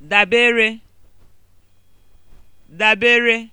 dabere dabere